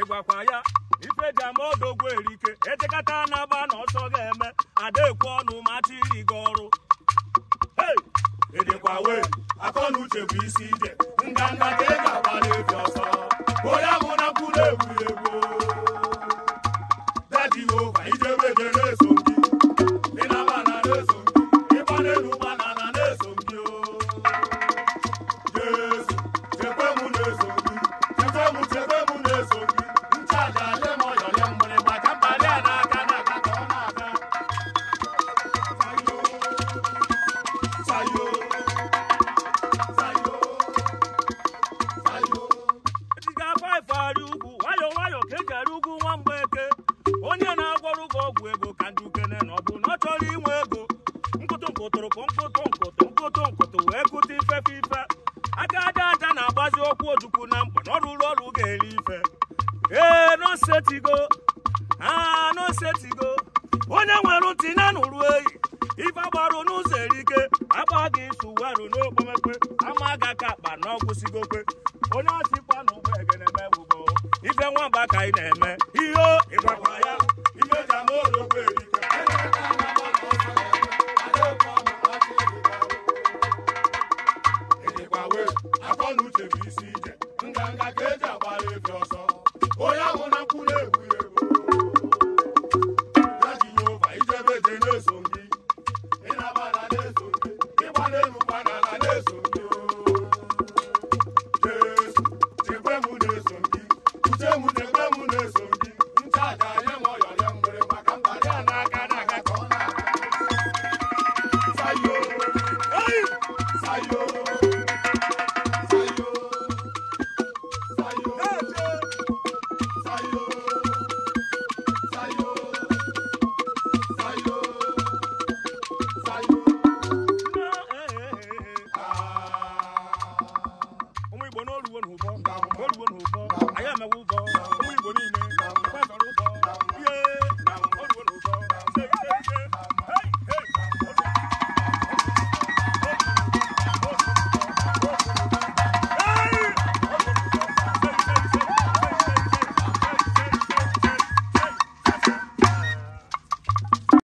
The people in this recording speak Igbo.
ịgwakwa ya ife ji ama ọdụ erike ejekata na agba na ọsọ ga-eme adekwe ọnụ mata iri gị ọrụ edekwa e wee akọ uche bụ isi ije nganga ka ị ga-agba ọsọ na ugwu nwayọ nwayọ ka eji arị ugwu nwa eke onye na-agwọrọ gị ọgwụ ego ka ndị ukene na ọ bụ na ọ chọrọ inwe ego nkụtụ nkụtụrụ ka nkụtụ nkụtụ nkụtụ wee kụta ifefe ife aka aja aja na-agbazi okwu ojukwu na mkpa na ọ rụrụ ọrụ ga-eri ife ee nosetigo aa nosetigo onye nwere ntị na nụrụ eyi ife gbarụ n'ụzọ erike agba gị isu warụ n'okpomekpe ama ga ka akpa na onye ọsịkwa na ụgbọ egene megbugbo ife nwamba ka ị na-eme ihe ịgwakwa ya imeja ma ologbo erika ejekwawe afọ na uche bụ isi ije nganga ka eji agbara ebi ọsọ onye ahụ na nkwụ na-egwu ya ego ya ji nyova ijebe je na-eso gị ịnabara na-eso gị ịgba n'elu Ndawubọ. Ndawubọ.